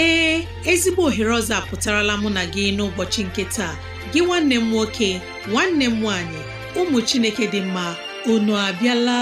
ee ezigbo ohere ọzọ apụtarala mụ na gị n'ụbọchị nke taa gị nwanne m nwoke nwanne m nwaanyị ụmụ Chineke dị mma unu abịala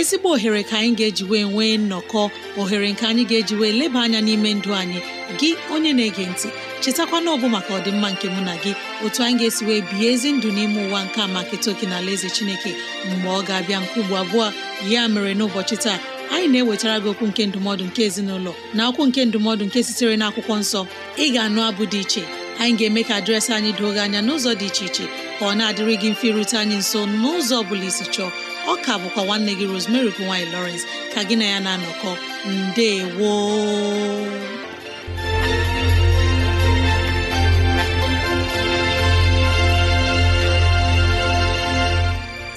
ezigbo ohere ka anyị ga-eji wee nwee nnọkọ ohere nke anyị ga-eji wee leba anya n'ime ndụ anyị gị onye na-ege ntị chetakwana ọbụ maka ọdịmma nke mụ na gị otu anyị ga-esi wee bihe ezi ndụ n'ime ụwa nke a maka etoke na ala eze chineke mgbe ọ ga-abịa nke ugbo abụọ ya mere n'ụbọchị taa anyị na-ewetara gị okwu nke ndụmọdụ nke ezinụlọ na okwu nke ndụmọdụ nke sitere na akwụkwọ nsọ ị ga-anụ abụ dị iche anyị ga-eme ka dịrasị anyị doo gị anya n'ụzọ dị iche iche ka ọ na-adịrịghị mfe ịrute anyị nso n'ụzọ ọ bụla isi chọọ ọ ka bụkwa nwanne gị Rosemary nwanyị lowrence ka gị na ya na-anọkọ ndewo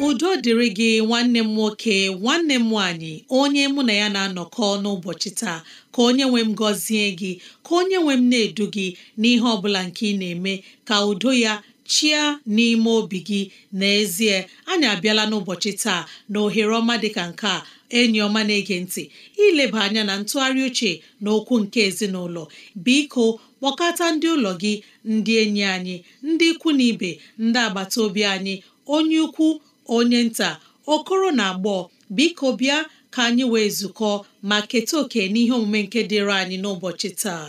udo dịrị gị nwanne m nwoke nwanne m nwanyị onye mụ na ya na-anọkọ n'ụbọchị taa ka onye nwe m gọzie gị ka onye nwe m na-edu gị n'ihe ọ bụla nke ị na-eme ka udo ya chia n'ime obi gị n'ezie anyị abịala n'ụbọchị taa na ohere ọma dịka nke a enyi ọma na-ege ntị ileba anya na ntụgharị uche na okwu nke ezinụlọ biko kpọkọta ndị ụlọ gị ndị enyi anyị ndị ikwu na ibe ndị agbata obi anyị onye ukwu onye nta okoro na agbọọ biko bịa ka anyị wee zukọ ma keta oke n'ihe omume nke dịịrị anyị n'ụbọchị taa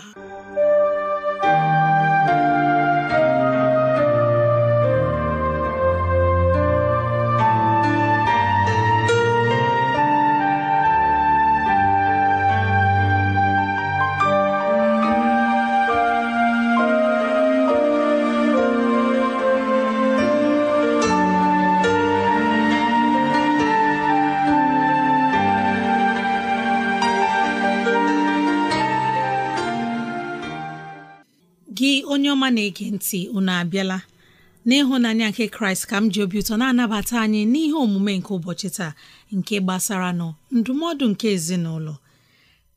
ọma na-ege ntị unu abịala n'ịhụnanya nke kraịst ka m ji obi ụtọ na-anabata anyị n'ihe omume nke ụbọchị taa nke gbasara nọ ndụmọdụ nke ezinụlọ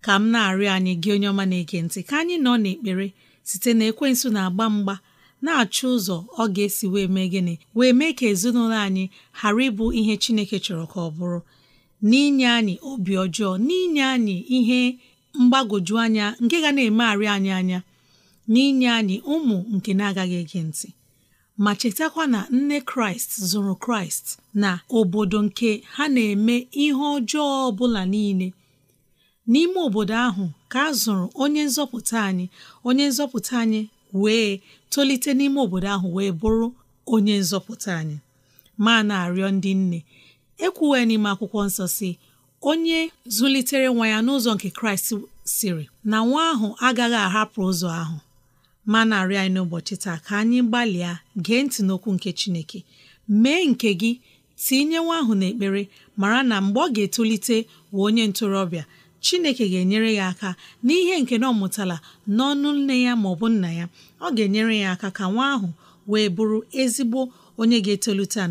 ka m na-arịọ anyị gị onye ọma na-ege ntị ka anyị nọ n'ekpere site na ekwensụ na-agba mgba na-achọ ụzọ ọ ga-esi wee mee gịnị wee mee ka ezinụlọ anyị ghara ịbụ ihe chineke chọrọ ka ọ bụrụ n'inye anyị obi ọjọọ n'inye anyị ihe mgbagwoju anya nke ga na-emegharị anyị anya n'inye anyị ụmụ nke na-agaghị ege ntị ma chetakwa na nne kraịst zụrụ kraịst na obodo nke ha na-eme ihe ọjọọ ọbụla niile n'ime obodo ahụ ka a zụrụ onye nzọpụta anyị onye nzọpụta anyị wee tolite n'ime obodo ahụ wee bụrụ onye nzọpụta anyị ma na-arịọ ndị nne ekwuwe n'ime akwụkwọ nsọ si onye zụlitere nwa ya n'ụzọ nke kraịst siri na nwa ahụ agaghị ahapụ ụzọ ahụ ma na-arịọ anyị n'ụbọchị taa ka anyị gbalịa gee ntị n'okwu nke Chineke mee nke gị tinye nwa ahụ n'ekpere mara na mgbe ọ ga-etolite wee onye ntorobịa Chineke ga-enyere ya aka n'ihe nke na ọ mụtala n'ọnụ nne ya ma ọ bụ nna ya ọ ga-enyere ya aka ka nwa ahụ wee bụrụ ezigbo onye ga-etolite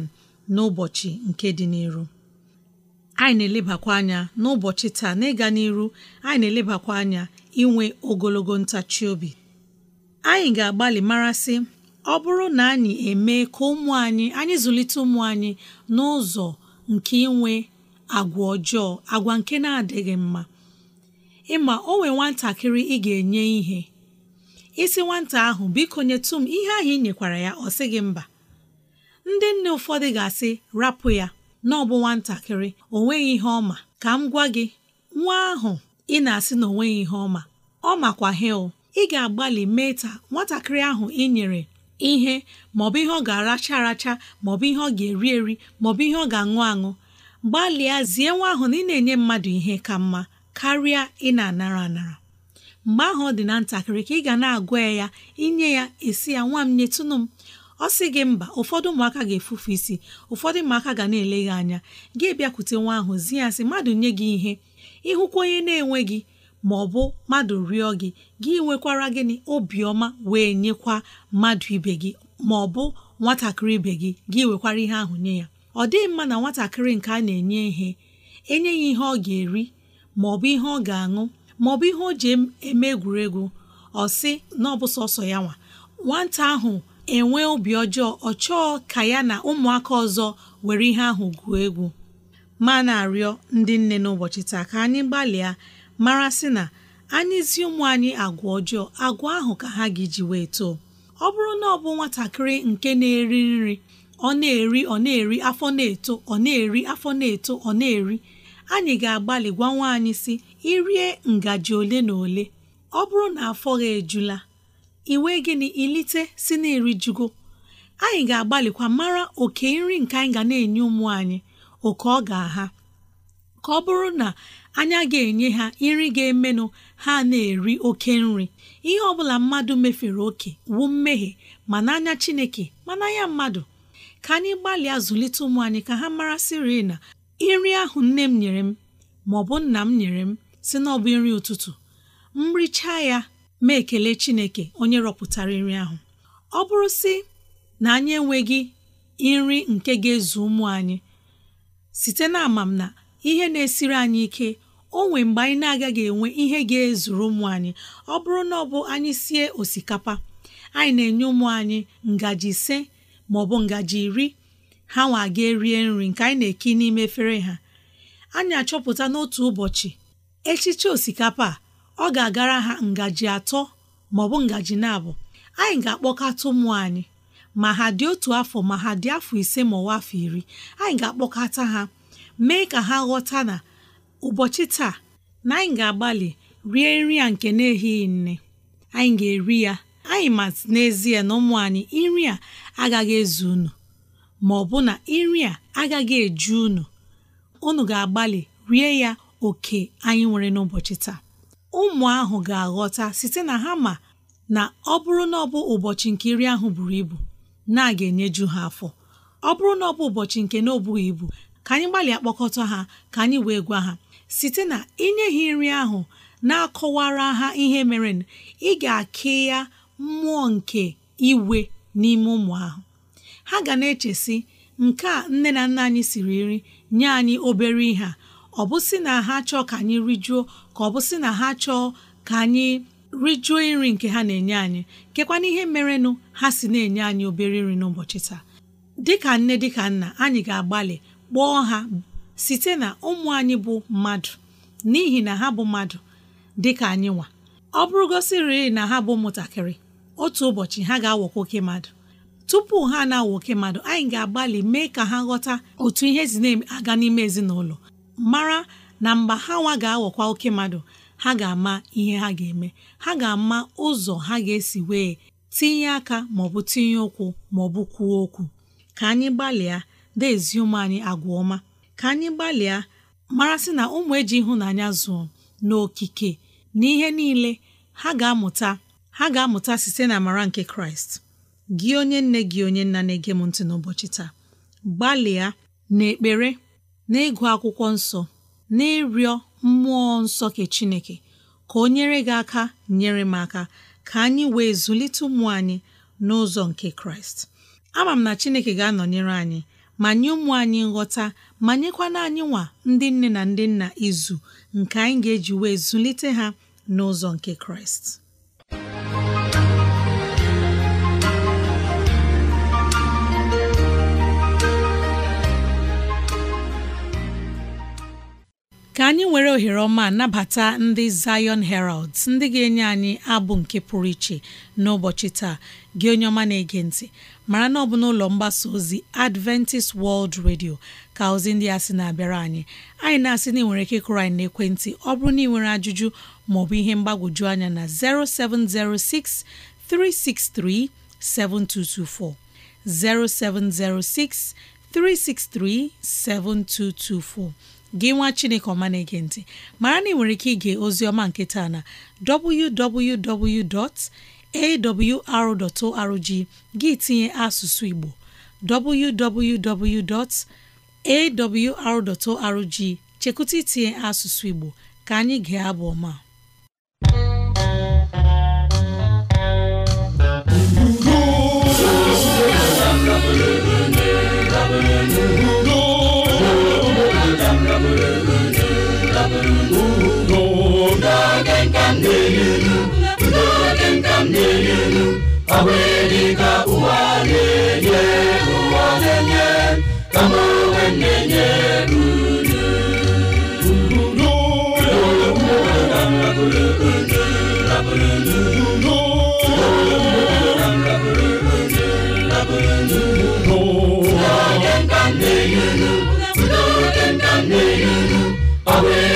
n'ụbọchị nke dị n'iru anyị na-elebakwa anya n'ụbọchị taa n'ịga n'iru anyị na-elebakwa anya inwe ogologo ntachi obi anyị ga-agbalị marasị ọ bụrụ na anyị emee ka ụmụ anyị anyị zụlite ụmụ anyị n'ụzọ nke inwe agwa ọjọọ agwa nke na-adịghị mma ịma o nwee nwatakịrị ị ga-enye ihe isi nwata ahụ biko nyetụ m ihe ahụ ị nyekwara ya ọ sị gị mba ndị nne ụfọdụ ga-asị rapụ ya na ọ bụ nwatakịrị o nweghị ihe ọma ka m gwa gị nwa ahụ ị na-asị na o nweghị ihe ọma ọ makwa hel ị ga-agbalị mee nwatakịrị ahụ ị nyere ihe maọbụ ihe ọ ga-aracha aracha maọbụ ihe ọ ga-eri eri maọbụ ihe ọ ga-aṅụ aṅụ gbalịa zie nwa ahụ na ị na-enye mmadụ ihe ka mma karịa ị na-anara anara mgbe ahụ ọ dị na ntakịrị ka ị ga na-agwa ya inye ya esi ya nwa m nyetụnụ m ọ sị gị mba ụfọdụ ụmụaka ga-efufu isi ụfọdụ ụmụaka ga na-ele gị anya gị bịakwute nwa ahụ zi ya sị mmadụ nye gị ihe ịhụkwa onye na-enweghị ma ọ bụ mmadụ rịọ gị gị nwekwara gịnị obiọma wee nyekwa mmadụ ibe gị ma ọ bụ nwatakịrị ibe gị gị nwekwara ihe ahụ nye ya ọ dịghị mma na nwatakịrị nke a na-enye ihe enye ya ihe ọ ga-eri ma ọ bụ ihe ọ ga-aṅụ ma ọ bụ ihe o ji eme egwuregwu ọ sị na ọ bụ sọsọ ya nwa nwata ahụ enwe obi ọjọọ ọ chọọ ka ya na ụmụaka ọzọ were ihe ahụ gwuo egwu ma na-arịọ ndị nne n'ụbọchị taa ka anyị gbalịa mara sị na anyị zi ụmụ anyị agwa ọjọọ agwa ahụ ka ha gị ji wee too ọ bụrụ na ọ bụ nwatakịrị nke na-eri nri ọ na-eri ọ na-eri afọ na-eto ọ na-eri afọ na-eto ọ na-eri anyị ga-agbalị gwa nwa anyị si irie ngaji ole na ole ọ bụrụ na afọ gị ejula iwe gịnị ilite si na erijugo anyị ga-agbalịkwa mara oke nri nke anyị ga na-enye ụmụ anyị oke ọ ga-aha ka ọ bụrụ na anya ga-enye ha nri ga-emenụ ha na-eri oke nri ihe ọbụla mmadụ mefere oke wu mmehie ma n'anya Chineke ma n'anya mmadụ ka anyị gbalịa zụlite ụmụ anyị ka ha mara sịrị na nri ahụ nne m nyere m ma ọ bụ nna m nyere m si na ọ bụ nri ụtụtụ m richaa ya ma ekele Chineke onye rọpụtara nri ahụ ọ bụrụ si na anyị enweghị nri nke ga-ezu ụmụ anyị site na amam na ihe na-esiri anyị ike o mgbe anyị na-agaghị enwe ihe ga-ezuru ụmụ anyị ọ bụrụ na ọ bụ anyị sie osikapa anyị na-enye ụmụ anyị ngaji ise ma ọ bụ ngaji iri ha nwa aga erie nri nke anyị na-eki n'ime efere ha anyị achọpụta n'otu ụbọchị echiche osikapa a ọ ga-agara ha ngaji atọ ma ọ bụ ngaji na-abụ anyị ga-akpọkata ụmụ anyị ma ha dị otu afọ ma ha dị afọ ise ma ọwa afọ iri anyị ga-akpọkata ha mee ka ha ghọta na ụbọchị taa na anyị ga-agbalị rie nri a nke na ehighị nne anyị ga-eri ya anyị ma n'ezie na ụmụ anyị nri a agaghị ezu unu ma ọ bụ na nri a agaghị eju unu unu ga-agbalị rie ya oke anyị nwere n'ụbọchị taa ụmụ ahụ ga-aghọta site na ha ma na ọ bụrụ na ọ bụ ụbọchị nke nri ahụ buru ibu na aga enyeju ha afọ ọ bụrụ na ọ bụ ụbọchị nke na obughị ibu ka anyị gbalịa kpọkọta ha ka anyị wee gwa ha site na inye ha nri ahụ na-akọwara ha ihe mere ị ga-akị ya mmụọ nke iwe n'ime ụmụ ahụ ha ga na-echesi nke a nne na nna anyị siri nri nye anyị obere ihe ọ bụ sị na ha chọọ ka anyị rijuo ka ọ bụ sị na ha chọọ ka anyị rijuo nri nke ha na-enye anyị na ihe merenụ ha si na-enye anyị obere nri n'ụbọchị taa dịka nne dịka nna anyị ga-agbalị kpọọ ha site na ụmụ anyị bụ mmadụ n'ihi na ha bụ mmadụ dị ka anyị nwa ọ bụrụgosiri na ha bụ ụmụntakịrị otu ụbọchị ha ga-awọkwa oke mmadụ tupu ha na-awọ oke mmadụ anyị ga-agbalị mee ka ha ghọta otu ihe si na-aga n'ime ezinụlọ mara na mgbe ha nwa ga-awọkwa oke mmadụ ha ga-ama ihe ha ga-eme ha ga-ama ụzọ ha ga-esi wee tinye aka maọbụ tinye ụkwụ maọbụ kwuo okwu ka anyị gbalịa dezie ụmụ anyị agwa ọma ka anyị gbalịa marasị na ụmụ eji ịhụnanya zụọ n'okike na ihe niile ha ga-amụta ha ga-amụta site na amara nke kraịst gị onye nne gị onye nna na-ege m ntị n'ụbọchị taa gbalịa n'ekpere na-ịgụ akwụkwọ nsọ na-ịrịọ mmụọ nsọ ke chineke ka o nyere gị aka nyere m aka ka anyị wee zụlite ụmụ anyị n'ụzọ nke kraịst ama m na chineke ga-anọnyere anyị ma nye ụmụ anyị nghọta ma nyekwana anyị nwa ndị nne na ndị nna izu nke anyị ga-eji wee zụlite ha n'ụzọ nke kraịst ka anyị nwere ohere ọma nabata ndị Zion herald ndị ga-enye anyị abụ nke pụrụ iche n'ụbọchị taa gị onye ọma na-ege ntị mara na ọ bụ n'ụlọ mgbasa ozi Adventist World Radio ka ozi ndị a sị na-abịara anyị anyị na-asị na ịnwere nwere ike ịkụrụ anyị n'ekwentị ọ bụrụ na ị nwere ajụjụ maọbụ ihe mgbagwoju anya na 0706 363 7224 0706 gị nwa chineke ọma na-ege ntị mara na ị nwere ike ige ozi ọma nke na www.awr.org gị tinye asụsụ igbo awr.org chekwụta itinye asụsụ Igbo ka anyị gee abụ ọma Yahweh.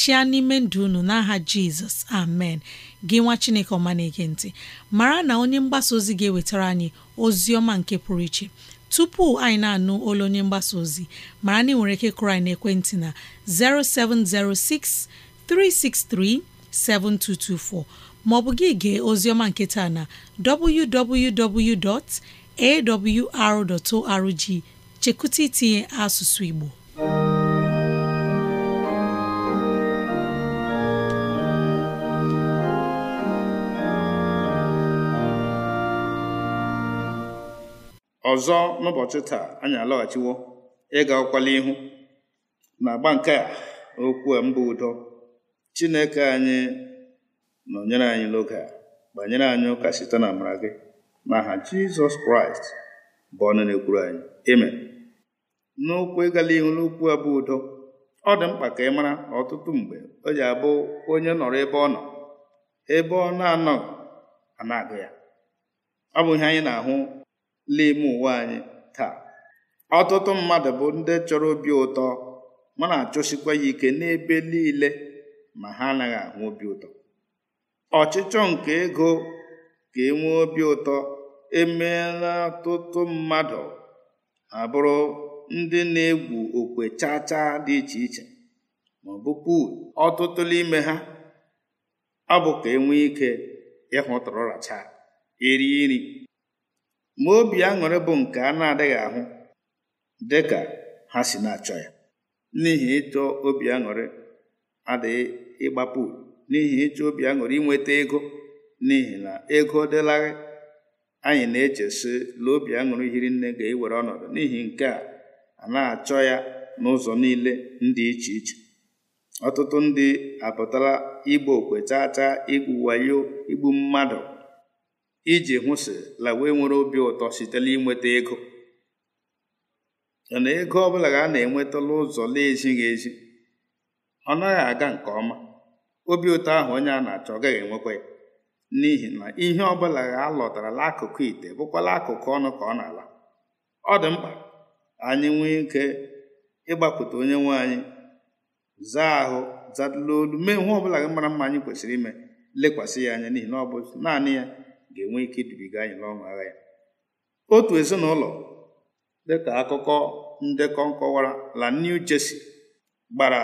chịa n'ime ndụ ụnụ n'aha jizọs amen gị nwa chineke ọma na-ege ntị mara na onye mgbasa ozi ga-ewetara anyị ozi ọma nke pụrụ iche tupu anyị na-anụ olu onye mgbasa ozi mara na ị ike kụrụ anyị n'ekwentị na 0706 363 7224 maọbụ gị gee ozioma nke taa na www.awr.org chekụta itinye asụsụ Igbo ọzọ n'ụbọchị taa anyị alọghachiwo ịga ụkwala ihu na agba nke a okwu mbụ udo chineke anyị nọnyere anyị n'oge a banyere anyị ụka site na amara gị n'aha jizọs kraịst bụ ọnụ na-ekwuru anyị amen n'okwu ịgala ihu n'okwu abụ udo ọ dị mkpa ka ị mara ọtụtụ mgbe o ji abụ onye nọrọ ebe ọ nọ ebe ọ na-anọghị ana na ya ọ bụ ihe anyị na-ahụ n'ime ụwa anyị taa ọtụtụ mmadụ bụ ndị chọrọ obi ụtọ ma na-achọsikwa ya ike n'ebe niile ma ha anaghị ahụ obi ụtọ ọchịchọ nke ego ka enwee obi ụtọ emeela ọtụtụ mmadụ abụrụ ndị na-egwu okwe chaa chaa dị iche iche ma ọbụpụ ọtụtụ n'ime ha ọ bụ ka enwee ike ịhụ tụrụracha eri nri ma obi aṅụrị bụ nke a na-adịghị ahụ dị ka ha si na-achọ ya n'ihi ịchọ obi aṅụrị adịghị ịgbapụ n'ihi ịchọ obi aṅụrị inweta ego n'ihi na ego dịlaghị anyị na-echesi na obi aṅụrị hiri nne ga-ewere ọnọdụ n'ihi nke a a na-achọ ya n'ụzọ niile ndị iche iche ọtụtụ ndị apụtala igbo okwe chaa chaa igbu wayo igbu mmadụ iji hụsịla wee nwere obi ụtọ sitela inweta ego na ego ọbụla ga a na-enwetala ụzọ na-ezighị ezi ọ naghị aga nke ọma obi ụtọ ahụ onye a na-achọ ọ gaghị enwekwa ya n'ihi na ihe ọbụla ga alọtara n'akụkụ ite bụkwala akụkụ ọnụ ka ọ na-ala ọ dị mkpa anyị nwee ike ịgbapụta onye nwe anyị zaa ahụ zadụla olu mee ihe ọbụla mara mma anyị kwesịrị ime lekwasị ya anya n'ihi na ọ bụ naanị ya ga-enwe ike idubiga anyị n'ọṅụ agha ya otu ezinụlọ dịka akụkọ ndekọ nkọwara la New Jersey gbara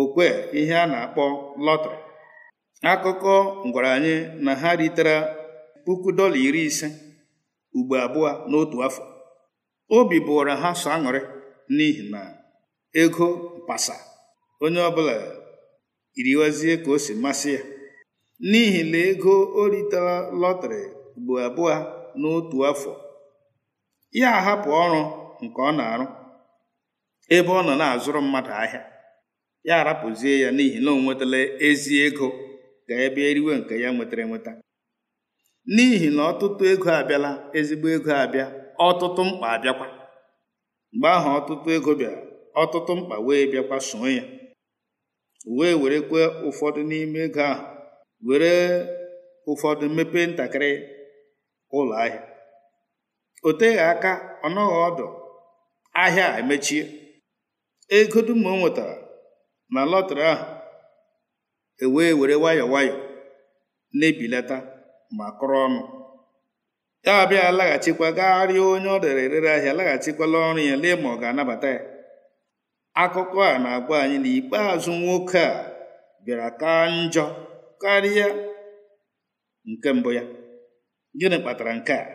okwe ihe a na-akpọ lọtrị akụkọ ngwaranye anyị na ha ritere puku dọla iri ise ugbo abụọ n'otu afọ obi bụwara ha sọ aṅụrị n'ihi na ego mpasa onye ọbụla iriwazie ka o si masị ya n'ihi na ego o ritara lọtrị bụ abụọ n'otu afọ ya ahapụ ọrụ nke ọ na-arụ ebe ọ nọ na-azụrụ mmadụ ahịa ya arapụzie ya n'ihi na o nwetala ezi ego ka ebe eriwe nke ya nwetara enweta n'ihi na ọtụtụ ego abịala ezigbo ego abịa ọtụtụ mkpa abịakwa mgbe ahụ ọtụtụ ego bịara ọtụtụ mkpa wee bịakwa soo ya wee werekwa ụfọdụ n'ime ego ahụ were ụfọdụ mmepe ntakịrị ụlọ ahịa o teghị aka ọ ọdụ ahịa emechie ego dum o nwetara na lọtrị ahụ ewee were nwayọọ nwayọọ na-ebilata ma kụrụ ọnụ ya abịa laghachikwa gagharịa onye ọ dere erere ahịa laghachikwala ọrụ ya lee ma ọ ga-anabata ya akụkọ a na-agwa anyị na ikpeazụ nwoke a bịara kaa njọ karịa nke mbụ ya gịnị kpatara nke a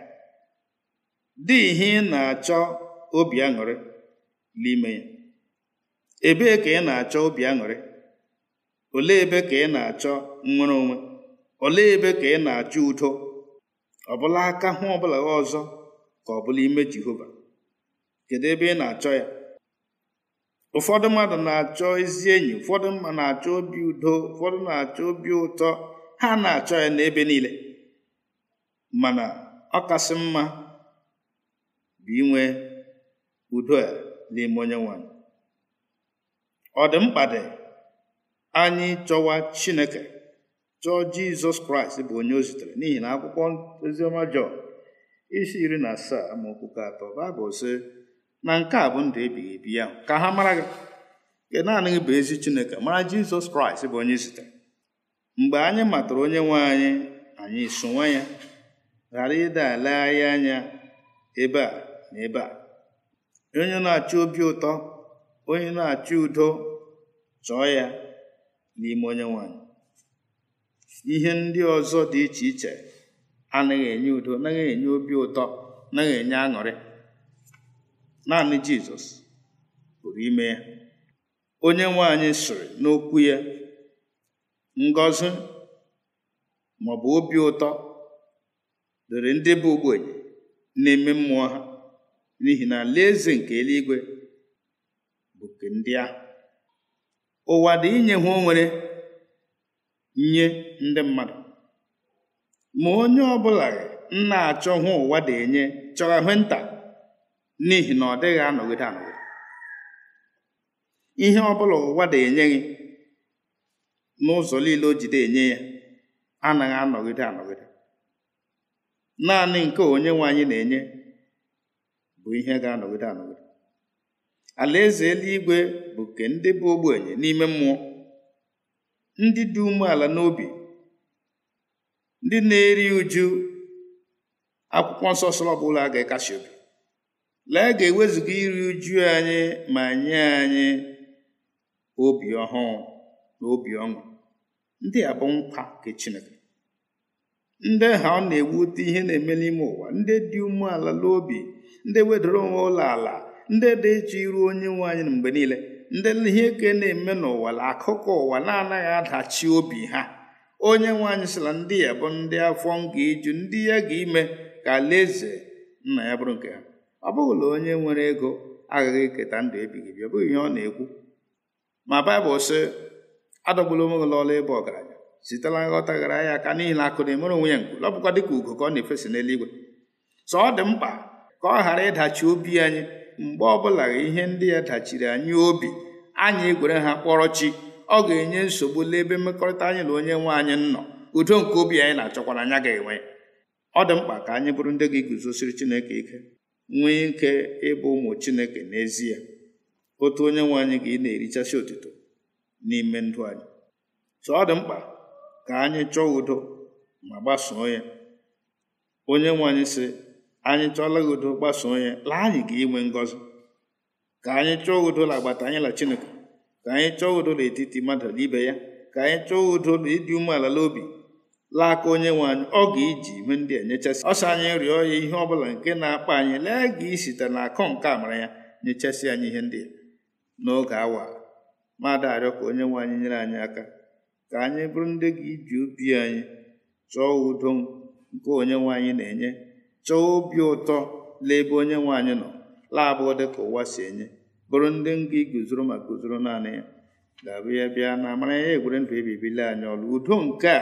dị ihe ị na-achọ obi aṅụrị n'ime ya ebee ka ị na-achọ obi aṅụrị Ole ebe ka ị na-achọ nnwere onwe Ole ebe ka ị na-achọ udo ọbụla aka hụ ọbụla ọzọ ka ọ bụla ime Jehova kedu ebe ị na-achọ ya ụfọdụ mmadụ na-achọ ezi enyi ụfọdụ mma na-achọ obi udo ụfọdụ na-achọ obi ụtọ ha na-achọ ya n'ebe niile mana ọ kasị mma bụ inwe udo a n'ime onye nwanyị ọ dị mkpa anyị chọwa chineke chọọ jizọs kraịst bụ onye ozitere n'ihi na akwụkwọ oziọma isi iri na asaa amaokwu atọ baịbụl sị na nke a bụ ndụ ebighị ebi ya ka ha mara gị nke naanị gị bụ ezi chineke mara jizọs kraịst bụ onye zitere mgbe anyị matara onye nwe anyị anyị sonwe ya ghara ịda ala anyị anya ebe a na ebe a onye na achị obi ụtọ onye na achị udo chọọ ya n'ime onye nwanyị ihe ndị ọzọ dị iche iche anaghị enye udo anaghị enye obi ụtọ anaghị enye aṅụrị naanị jizọs pụrụ ime ya onye nwe anyị sịrị n'okwu ya ngọzi maọbụ obi ụtọ dịrị ndị bụ ogbenye na-eme mmụọ ha n'ihi na alaeze nke eluigwe bụ nke ndị ahụ ụwa dị inye ha onwere nye ndị mmadụ ma onye ọbụla nna na-achọ hụ ụwa enye chọrọ hụ nta n'ihi na ọ dịghị anọgide anọgide ihe ọ bụla ụwa da enye gị n'ụzọ niile o jide enye ya anaghị anọgide anọgide naanị nke onye nwe anyị na-enye bụ ihe ga-anọgide anọgide alaeze eluigwe bụ nke ndị bụ ogbenye n'ime mmụọ ndị dị umeala n'obi ndị na-eri uju akwụkwọ nsọ sọrọ ọbụla ga-ekasi obi lee ga-ewezuga iri uju anyị ma nye anyị obi ọhụụ na obi ọṅụ ndị a bụ nkwa nke Chineke ndị ha ọ na-ewute ihe na-eme n'ime ụwa ndị dị umeala n'obi ndị wedoro onwe ụlọ ala ndị dị ịchọ iru onye nwe anyị na mgbe niile ndị ihe eke na-eme n'ụwa na akụkọ ụwa na-anaghị adachi obi ha onye nwe anyị sịla ndị ya bụ ndị afọ nga iju ndị ya ga ime ka alaeze nna ya bụrụ nke ha ọ bụghị na onye nwere ego aghaghị iketa ndụ ebighị ebi ọ bụghị ihe ọ na-ekwu ma baịbụl sị adọgbula onwe gị n'ọla ịbụ ọgaranya sitela nghọta gara ya aka n'ihi na akụ na-emere onwe ya nkụ ọ dịka ugo ka ọ na-efesa n'eluigwe sọ ọ dị mkpa ka ọ ghara ịdachi obi anyị mgbe ọbụla ihe ndị ya dachiri anyị obi anyị egwere ha kpọrọ chi ọ ga-enye nsogbu n'ebe mmekọrịta anyị na onye nwe anyị nọ udo nke obi anyị na-achọkwara anya ga-enwe ọ dị mkpa ka anyị bụrụ ndị ga-eguzosiri Chineke ike nwee ike ịbụ ụmụ chineke n'ezie otu onye nwe anyị ka ị na-erichasi otuto n'ime ndụ anyị so ọ dị mkpa ka anyị chọọ udo ma gbasoo ya onye nwe anyị sị anyị chọọla udo gbasoo ya laa anyị ka inwe ngọzi ka anyị chọọ udo la agbata anyị la chineke ka anyị chọọ udo n'etiti mmadụ na ibe ya ka anyị chọọ udo la ịdị umeala n'obi laa aka onye nwe anyị ọ ga-eji ihe ndị enyechasị ọsọ anyị rịọ ya ihe ọbụla nke na-akpa anyị lee ga isite na akọ nke amara ya nyechasị anyị ihe ndị n'oge awa mmadụ arịọ ka onye nwe anyị nyere anyị aka ka anyị bụrụ ndị gị iji obi anyị chọọ udo nke onye nwe anyị na-enye chọọ obi ụtọ laebe onye nwe anyị nọ laabụ dị ka ụwa si enye bụrụ ndị nga guzoro ma guzoro naanị ya ga-abụ ya bịa na amara ya egwere ndụ ebibili anyị ọrụ udo nke a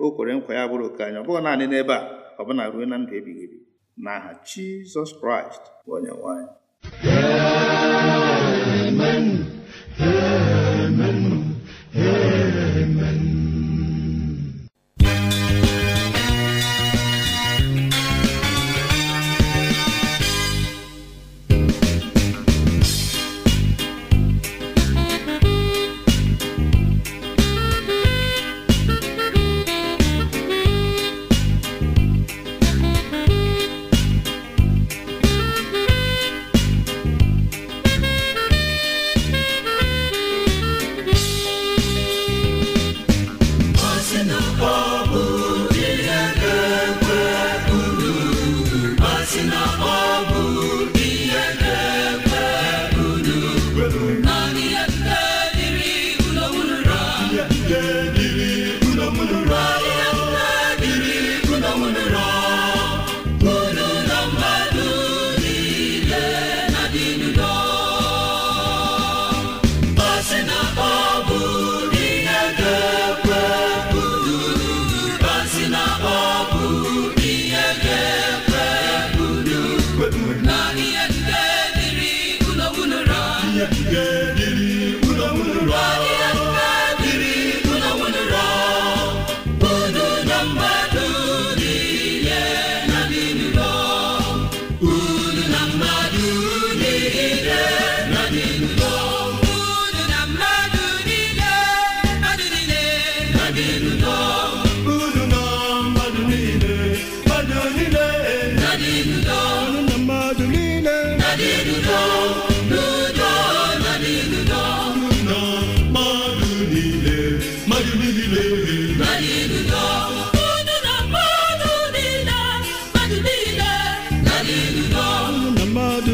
o kwere nkwa ya bụrụ oke anyị ọ bụghị naanị n'ebe a ọ bụna ruo na ndụ ebighị ebi na Jizọs Kraịst bụ onyenwe Amen. Amen. Amen.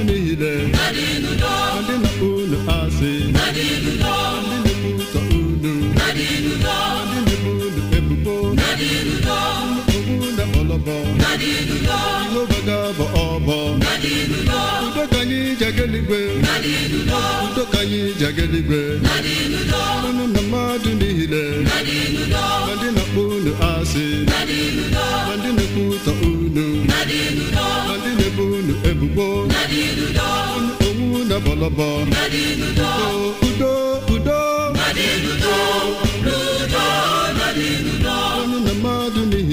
Ndị niile ndị na unu asị ndị na-ebuta unu ndị na-ebu unu ebubo unu ọlọbọ ihe ụbaga bụ ọbọ udo ka na mmadụ niile ndị na unu asị onwu na bọlọbọ udo udo udo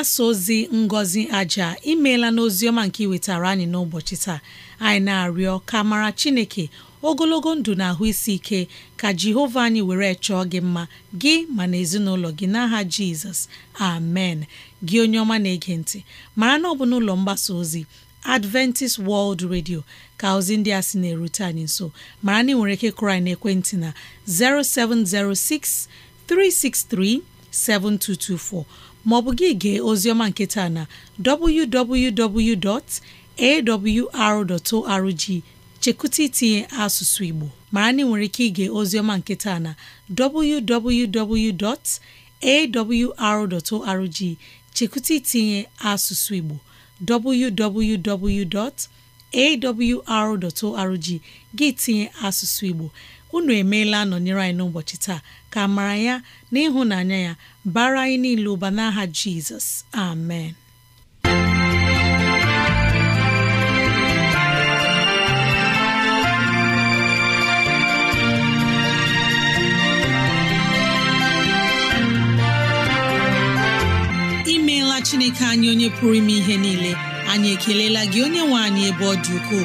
mgbasa ozi ngozi aja imeela n'oziọma nke iwetara anyị n'ụbọchị taa anyị na-arịọ ka mara chineke ogologo ndụ na ahụ isi ike ka jehova anyị were chọọ gị mma gị ma na ezinụlọ gị n'aha jizọs amen gị onye ọma na-ege ntị mara na ọ bụ n'ụlọ mgbasa ozi adventist world radio ka ozi ndị a sị na-erute anyị nso mara na ị nwere ike kụrụ anyị n'ekwentị na 0706 363 7224 maọbụ gị gee ozioma nketa na www.awr.org chekụta itinye asụsụ Igbo mara na ị nwere ike ige ozioma nketa na arrg chekụta itinye asụsụ Igbo www.awr.org gị tinye asụsụ Igbo unu emeela nọnyere anyị n'ụbọchị taa ka amara ya na ịhụnanya ya bara anyị niile ụba n'aha Jizọs amen imeela Chineke anyị onye pụrụ ime ihe niile anyị ekelela gị onye nwe anyị ebe ọ dị ukwuu